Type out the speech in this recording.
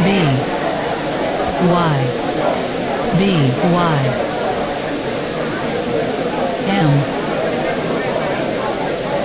B Y B Y